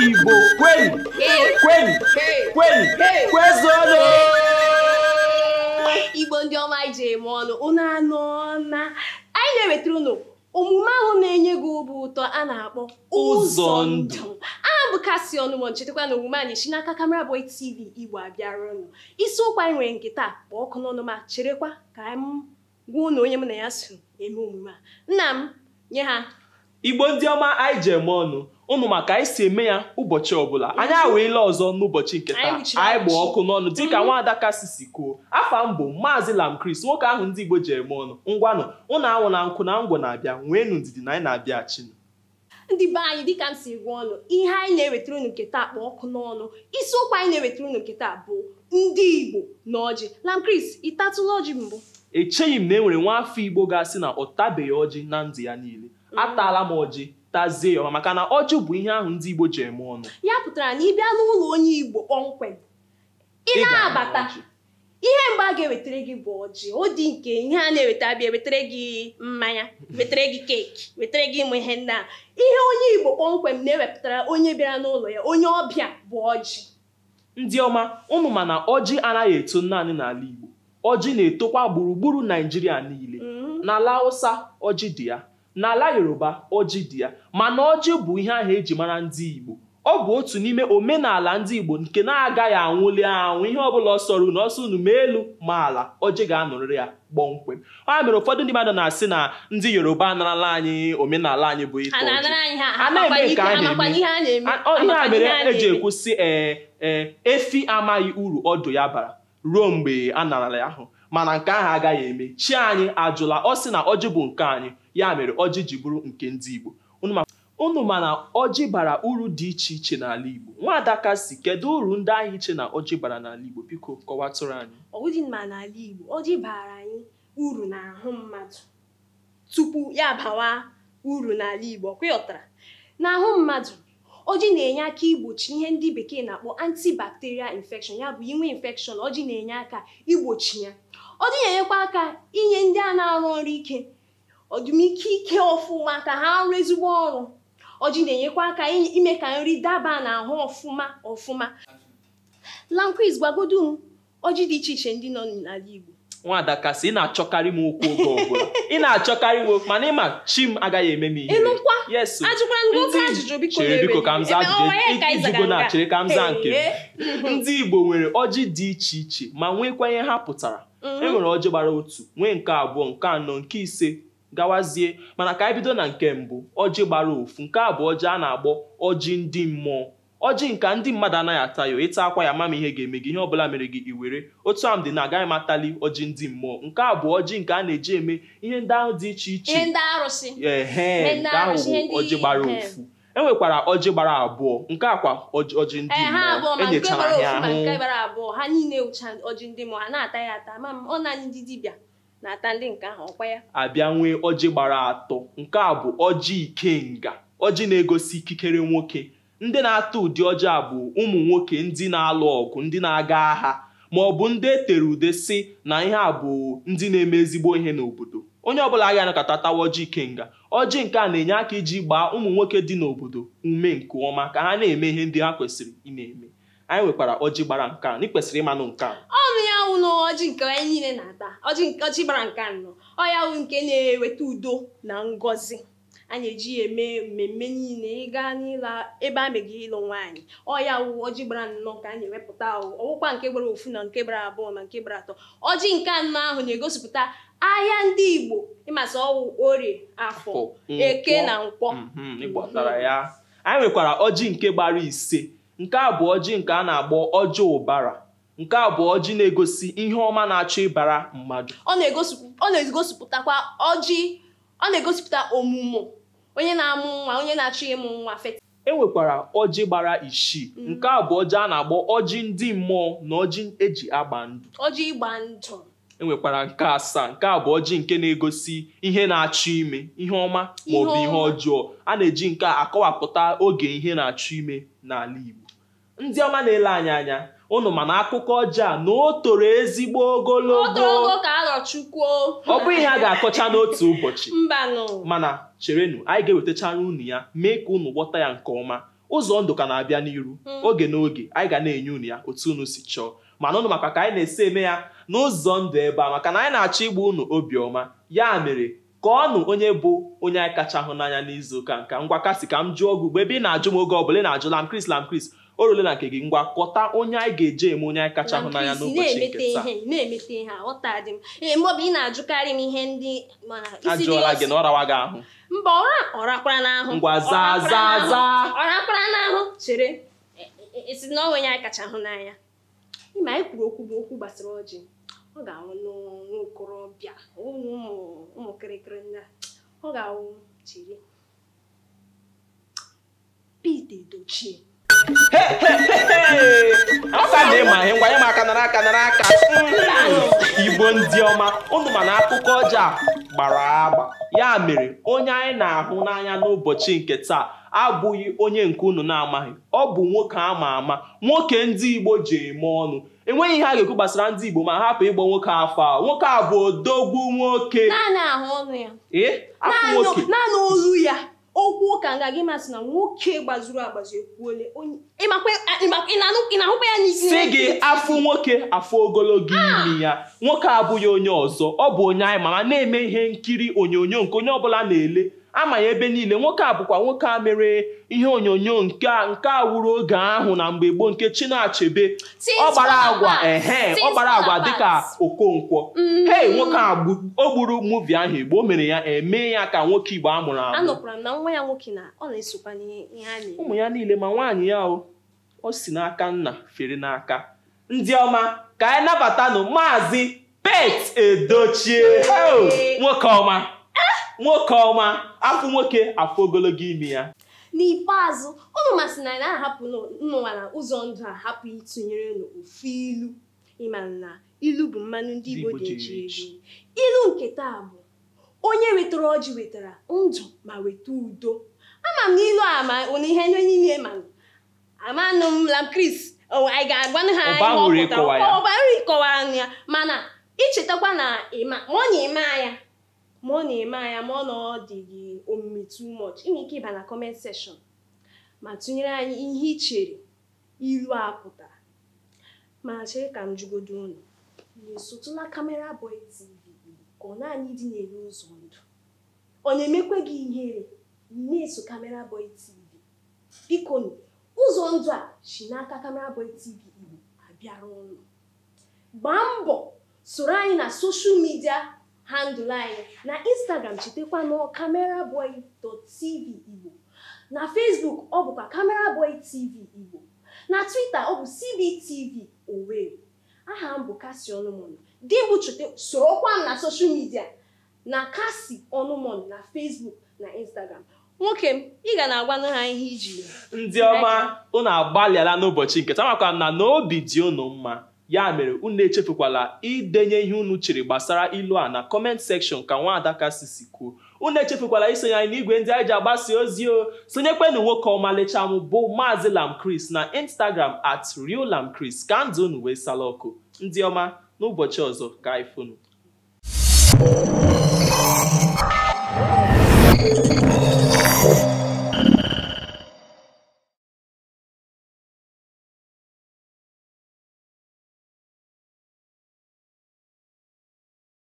Igbo kwenu kwenu kwenu Igbo ndị ọma ije eme ọnụ unu anụ na anyị na-ewetara ụnụ omume ahụ na-enye gị obi ụtọ a na-akpọ ụzọ ndụ aha bụ kasi ọnụmọ nchetakwa na omume anyị si n'aka kamera Boy TV Igbo abịara ọnụ ụkwa anyị nwere nke taa kpọọ ọkụ n'ọnụ ma cherekwa ka m gwa ụnụ onye mụ na ya so eme omume a nna m nye ha igbo ndị ọma anyị ji eme ọnụ ụnụ maka anyị si eme ya ụbọchị ọbụla anyị aweela ọzọ n'ụbọchị nke taa anyị gbaa ọkụ n'ọnụ dịka mhm. nwaada kasi si kwuo afa mbụ maazị Lam lamkris nwoke ahụ ndị igbo ji eme ọnụ ngwanụ ụnụ anwụ na nkụ na ngwọ na-abịa nweenụ ndidi na anyị na-abịa chinu ndị be anyị dịka m si gwa ọnụ ihe anyị na-ewetara unu nke taa kpa ọkụ n'ọnụ isi isiokwu anyị na-ewetara unu nke taa bụ ndị igbo na ọjị lamkris ịtatụla ọjị mbụ echeghị m na e nwere nwa afọ igbo ga-asị na ọ tabeghị ọjị na ndụ ya niile atala m ọjị tazie ya maka na ọjị bụ ihe ahụ ndị Igbo ji eme ọnụ ya pụtara na ị bịa n'ụlọ onye Igbo kpọmkwem ị na-abata ihe mgbe a ga-ewetara gị bụ ọjị ọ dị nke ihe a na-eweta bịa wetara gị mmanya wetara gị keeki wetara gị ịmụ ihe nna ihe onye Igbo kpọmkwem na-ewepụtara onye bịara n'ụlọ ya onye ọbịa bụ ọjị ndị ọma ụmụ mana ọjị anaghị eto naanị n'ala Igbo ọjị na-etokwa gburugburu Naijiria niile mm-hmm. n'ala Hausa ọjị dị ya n'ala yoruba ọjị dị ya mana ọjị bụ ihe ahụ eji mara ndị igbo ọ bụ otu n'ime omenala ndị igbo nke na-agaghị anwụli anwụ ihe ọbụla ọsọrụ na ọsọ unu ma elu ma ala ọjị ga-anọrịrị ya kpọmkwem a mere ụfọdụ ndị mmadụ na-asị na ndị yoruba anarala anyị omenala anyị bụ ite ihe a mere eji e ekwusị ee eh, ee eh, efi amaghị uru ọdụ ya bara ruo mgbe a narala ya ahụ mana nke ahụ agaghị eme chi anyị ajụla ọ sị na ọjị bụ nke anyị ya mere ọjị ji bụrụ nke ndị Igbo unu ma na ọjị bara uru dị iche iche n'ala Igbo adaka si kedu uru ndị ahịa iche na ọjị bara n'ala Igbo biko kọwatụrụ anyị ọ dị n'ala Igbo ọjị bara anyị uru n'ahụ mmadụ tupu ya bawa uru n'ala Igbo kwịọtara n'ahụ mmadụ ojii na-enye aka igbochi ihe ndị bekee na-akpọ antibacterial infection ya bụ inwe infection ọjị na-enye aka igbochi ya ọ dị na-enyekwa aka inye ndị a na-arụ ọrụ ike ọdụmike ike ọfụma ka ha rụọ ezigbo ọrụ ọjị na-enyekwa aka ime ka nri daba na ahụ ọfụma ọfụma lanquiz gwagodu m ọjị dị iche iche ndị nọ n'ala Igbo nwaada kasị ị na-achọkarị m okwu oge ọbụla ị na-achọkarị m okwu mana ịma chi m agaghị eme m ihe chere biko ka m zaa ijugo na chere ka m zaa nke ndị Igbo nwere ọjị dị iche iche ma nwekwa ihe ha pụtara Mhm. e nwere ọjị gbara otu nwee nke abụọ nke anọ nke ise gawazie mana ka anyị bido na nke mbụ ọjị gbara ofu nke abụọ ọjị a na-agbọ ọjị ndị mmụọ ọjị nka ndị mmadụ anaghị ata ya ịta akwa ya mama ihe ga-eme gị ihe ọbụla mere gị iwere otu m dị na agaghị m atali ọjị ndị mmụọ nke abụọ ọjị nke a na-eji eme ihe ndị ahụ dị iche iche ehe nke ahụ bụ ọjị gbara ofu enwekwara ọjị gbara abụọ nke akwa ọjị ndị eh, mmụọ enyechara ya ahụ ha niile ewucha ọjị ndị mmụọ ha na-ata ya ata ma ọ naanị ndị dibịa na-ata ndị nke ahụ ọkwa ya abịa nwee ọjị gbara atọ nke a bụ ọjị ikenga ọjị na-egosi ikikere nwoke ndị na-ata ụdị ọjị a bụ ụmụ nwoke ndị na-alụ ọgụ ndị na-aga agha ma ọ bụ ndị e tere ude si na ihe a bụ ndị na-eme ezigbo ihe n'obodo onye ọbụla agaghị anakọta tawa ike kenga ọjị nke a na-enye aka iji gbaa ụmụ nwoke dị n'obodo ume nke ọma ka ha na-eme ihe ndị ha kwesịrị ị na-eme anyị nwekwara ọjị gbara nka a n'ịkwesịrị ịmanụ nke a ọnụ ya wụlọ ọjị nke anyị niile na-ata ọjị gbara nke anọ ọ ya wụ nke na-eweta udo na ngọzi a na-eji ya eme mmemme niile ịga n'ịla ebe a megi ịlụ nwaanyị ọya wụ ọjị gbara nnọọ ka a na-ewepụta ọwụkwa nke gbara ofu na nke gbara abụọ na nke gbara atọ ọjị nke anọ ahụ na-egosipụta ahịa ndị Igbo ịmasị ọwụ orie afọ eke na nkwọ mhm, anyị nwekwara ọjị nke gbara ise nke a bụ ọjị nke a na-agbọ ọjị ụbara nke a bụ ọjị na-egosi ihe ọma na-achọ ịbara mmadụ ọ na-egosipụtakwa ọjị ọ na-egosipụta omume onye na-amụ nwa onye na-achọ ịmụ nwa e nwekwara ọjị gbara isii mm. nke a bụ ọjị a na-agbọ ọjị ndị mmụọ na ọjị eji agba ndụ ọjị ịgba ndụ e nwekwara nke asaa nke a bụ ọjị nke na-egosi ihe na-achọ ime ihe ọma maọbụ ihe ọjọọ a na-eji nke a akọwapụta oge ihe na-achọ ime n'ala Igbo ndị ọma na-ele anyị anya Ụnụ mana akụkọ ọjọọ a na o toro ezigbo ogologo ọ bụ ihe a ga-akọcha n'otu ụbọchị mana cherenụ anyị ga-ewetachara unu ya mee ka ụnụ gwọta ya nke ọma ụzọ ndụ ka na-abịa n'iru hmm. oge n'oge anyị ga na-enye unu ya otu unu si chọọ mana ụnụ maka ka anyị na-esi eme ya n'ụzọ ndụ ebe a maka na anyị na-achọ igbu unu obiọma ya mere ka ọnụ onye bụ onye anyị kacha hụ n'anya n'izu ụka nka ngwa kasị ka m jụọ gị ugbo ebe ị na-ajụ m oge ọbụla ị na-ajụ lam kris lam kris orule na nke gị ngwa kọta onye anyị ga-eje eme onye anyị kacha hụ n'anya n'ụbọchị nke taa na-emete ihe ọtadị m mgbe ị na-ajụkarị m ihe ndị ajụọla gị na ọrawa gị ahụ mba ọra ọrakwara n'ahụ ngwa zaa zaa zaa ọrakwara n'ahụ chere e, e, e, esi na onwe anyị kacha hụ n'anya ịma anyị kwuru okwu bụ okwu gbasara ọjị ọ ga-awụ n'okorobịa ụmụ kịrịkịrị ndị a ọ ga anwụ chere Pete Edochie aka na ịma ihe ngwanye m aka nara aka nara aka igbo ndị ọma ụnụ ma na akụkọ ọjọọ a gbara agba ya mere onye anyị na-ahụ n'anya n'ụbọchị nke taa abụghị onye nke unu na-amaghị ọ bụ nwoke ama ama nwoke ndị igbo ji eme ọnụ enweghị ihe a ga-ekwu gbasara ndị igbo ma hapụ ịgba nwoke afọ a nwoke a bụ odogwu nwoke naanị ahụ ọnụ ya ee nwoke naanị olu ya okwu ụka nga gị masị na nwoke gbazuru agbazu ekwuole ị na-ahụkwa ya n'isi si gị afụ nwoke afụ ogologo imi ah! ya nwoke abụghị onye ọzọ ọ bụ onye anyị mama na-eme ihe nkiri onyonyo nke onye ọbụla na-ele ama ya ebe niile nwoke a bụkwa nwoke a mere ihe onyonyo nke nke a wuru oge ahụ na mgbe gboo nke Chinachebe ọ gbara agwa ehe ọ gbara agwa dịka Okonkwo mm. hei nwoke a o gburu muvi ahụ Igbo o mere ya eme ya ka nwoke Igbo amụrụ amụ ụmụ ya niile ma nwaanyị ya o si n'aka nna fere n'aka ndị ọma ka anyị nabatanụ maazị Pete Edochie nwoke ọma nwoke ọma afọ nwoke afọ ogologo imi ya n'ikpeazụ ụmụ masị na na-ahapụ nnụnwa na ụzọ ndụ a hapụ ịtụnyere n'ofu ilu ịmara na ilu bụ mmanụ ndị Igbo ga-eji eji ilu nke taa bụ onye wetara ọjị wetara ndụ ma weta udo ama m n'ilu a ma na ihe ndị niile ma amanụ m la Chris anyị ga-agbanụ ha ihe ọ pụtara ọbara ịkọwara ya mana ichetakwa na ma ọ na-eme anya ma ọ na-eme anya ma ọ na ọ dị gị omume too much ị ike ịba na comment seshọn ma tụnyere anyị ihe ị chere ilu a pụtara ma chere ka m jugodo unu na-esotụla kamera Boy TV ka ọ naanị dị n'elu ụzọ ndụ ọ na-emekwa gị ihere na-eso kamera Boy TV biko ụzọ ndụ a si n'aka kamera Boy TV Igbo abịara ụlọ gbaa mbọ soro anyị na soshal midia handụl anyị na instagram chetakwa nọ cameraboy.tv igbo na facebook ọ bụkwa cameraboy tv igbo na twitter ọ bụ cbtv owerri aha m bụ kasi ọnụmọnụ di bụ chute sorokwa m na soshal midia na kasi ọnụmọnụ na facebook na instagram nwoke m ị ga na-agwanụ ha ihe iji ndị ọma unu agbalịala n'ụbọchị nke tamakwa na n'obi dị unu mma ya mere unu echefukwala idenye ihe unu chere gbasara ilu a na kọment sekshọn ka nwaada kasisi kwuo unu echefukwala isonye anyị n'igwe ndị anyị ji agbasa ozi o sonyekwenụ nwoke ọmalịcha m bụ lam lamchris na instagram at real lamchris ka ndụ unu wee sala ọkụ ndị ọma n'ụbọchị ọzọ ka anyị funu